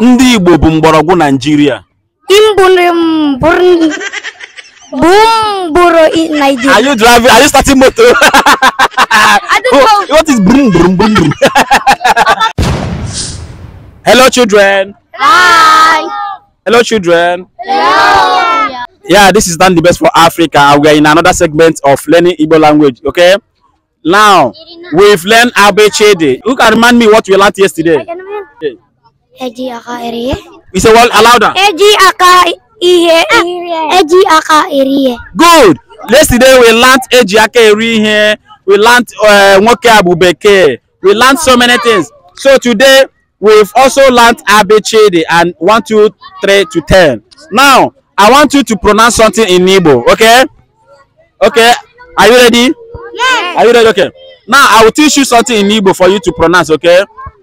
Ndị Igbo bụ mgbọrọgwụ Naịjirịa. Are you driving? Are you starting motor? What is brum brum brum brum? Hello, children. Hi. Hello, children. Hello. Yeah, this is done the best for Africa. We are in another segment of learning Igbo language. Okay. Now we've learned Abechede. Who can remind me what we learned yesterday? Okay. Eji aka iriye. We say well louder. Eji aka ihe. Eji aka iriye. Good. Yesterday we learnt eji aka iri here. We learnt eh, nwoke uh, abu We learnt so many things. So today we've also learnt abechede and one two three to ten. Now I want you to pronounce something in Igbo, okay? Okay. Are you ready? Yes. Are you ready? Okay. Now I will teach you something in Igbo for you to pronounce, okay?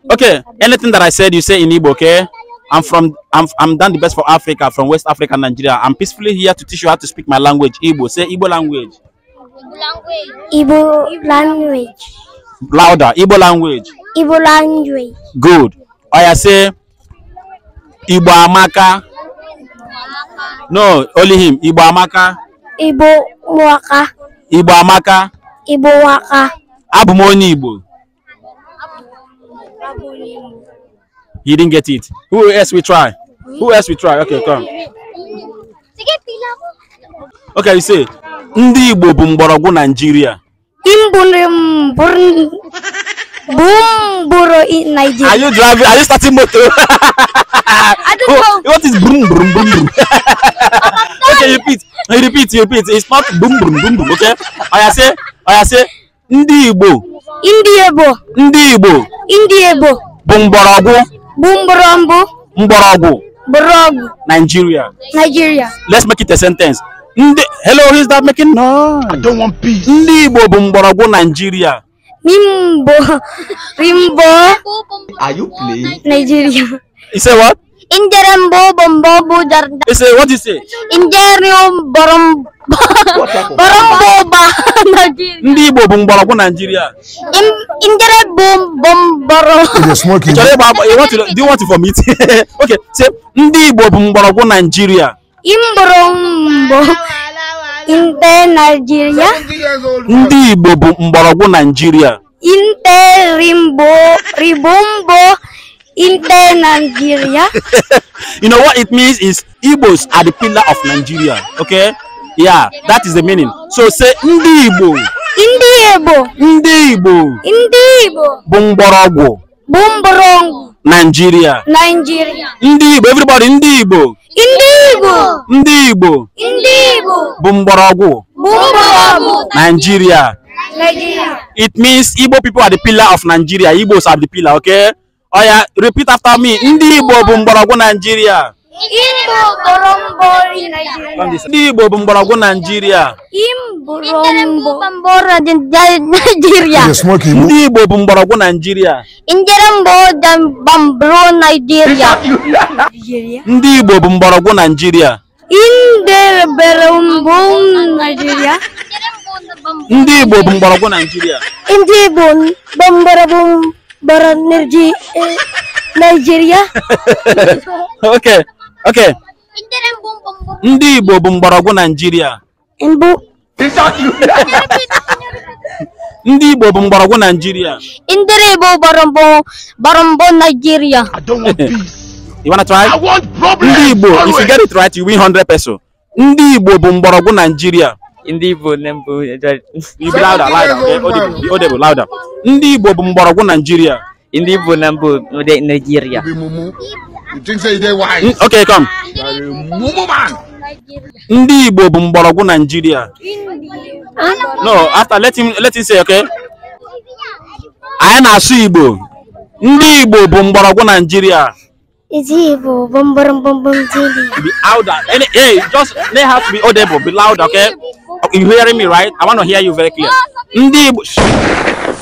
Okay, anything that I said, you say in Igbo, okay? I'm from, I'm, I'm done the best for Africa, from West Africa, Nigeria. I'm peacefully here to teach you how to speak my language, Igbo. Say Igbo language. Language. Igbo language. Louder, Igbo language. Igbo language. Good. Oya oh, say, Igbo Amaka. No, only him. Igbo Amaka. Igbo Waka. Igbo Amaka. Igbo Waka. Abụ m Igbo. He didn't get it. Who else we try? Who else we try? Okay, come. Okay, you say. Ndị Igbo bụ mgbọrọgwụ Nigeria. Bumburo in Nigeria. Are you driving? Are you starting motor? I don't oh, know. What is boom boom boom boom? Oh, okay, repeat. You repeat. You repeat. It's not boom boom boom boom. Okay. I say. I say. Ndị Igbo. Ndị Igbo. Ndị Igbo. Ndị Igbo. bụ mgbọrọgwụ bụ mgbọrọmbụ mgbọrọgwụ Borogu. Nigeria Nigeria let's make it a sentence ndị hello who is that making no I don't want peace ndị Igbo bụ Nigeria Nimbo Rimbo Are you playing Nigeria You say what Injerembo bombo bujar. You say what you say Injerium borom ndị Igbo bụ mgbọrọgwụ Naijiria njere bụ bụ mgbọrọgwụ chọrọ ịgba do you want to vomit okay say ndị Igbo bụ mgbọrọgwụ Naijiria mgbọrọgwụ nte Naijiria ndị Igbo bụ mgbọrọgwụ Naijiria inte rimbo Nigeria you know what it means is Igbos are the pillar of Nigeria okay yeah that is the meaning so say ndị igbo ndị igbo ndị igbo ndị igbo bụ mgbọrọgwụ bụ mgbọrọgwụ Nigeria Nigeria ndị igbo everybody ndị igbo ndị igbo ndị igbo ndị igbo bụ mgbọrọgwụ bụ mgbọrọgwụ Nigeria Nigeria it means Igbo people are the pillar of Nigeria Igbos are the pillar okay Oh yeah. repeat after me ndị igbo bụ mgbọrọgwụ Nigeria Imbo kan Imbo Nigeria. Nigeria. Nigeria. Nigeria. bambara Naijiria ndị Nigeria. Di bo Naijiria go Nigeria. bụ Nigeria. Naijiria bo Igbo go Nigeria. Naijiria ndị Igbo Nigeria. Eh, Nigeria. Nigeria. okay oke ndị igbo bụ mgbọrọgwụ naijiria ndị igbo bụ mgbọrọgwụ naijiria I igbo want naijiria You wanna try? I want problems. Ndị Igbo, if you get it right, you win 100 peso. Ndị Igbo bụ mgbọrọgwụ Nigeria. Ndị Igbo nembu. You be louder, louder. Okay, audible, louder. Ndị Igbo bụ mgbọrọgwụ Nigeria. Ndị Igbo na mbụ Nigeria. You think say they wise? Okay, come. Ndị Igbo bụ mgbọrọgwụ Nigeria. No, after let him let him say okay. Anyị na-asụ Igbo. Ndị Igbo bụ mgbọrọgwụ Nigeria. Ndị Igbo bụ mgbọrọgwụ Nigeria. Be louder. Any, hey, just they have to be audible. Be louder. okay? You hearing me, right? I want to hear you very clear. Ndị Igbo.